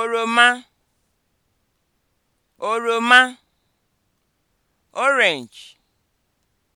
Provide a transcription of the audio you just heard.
oroma oroma orange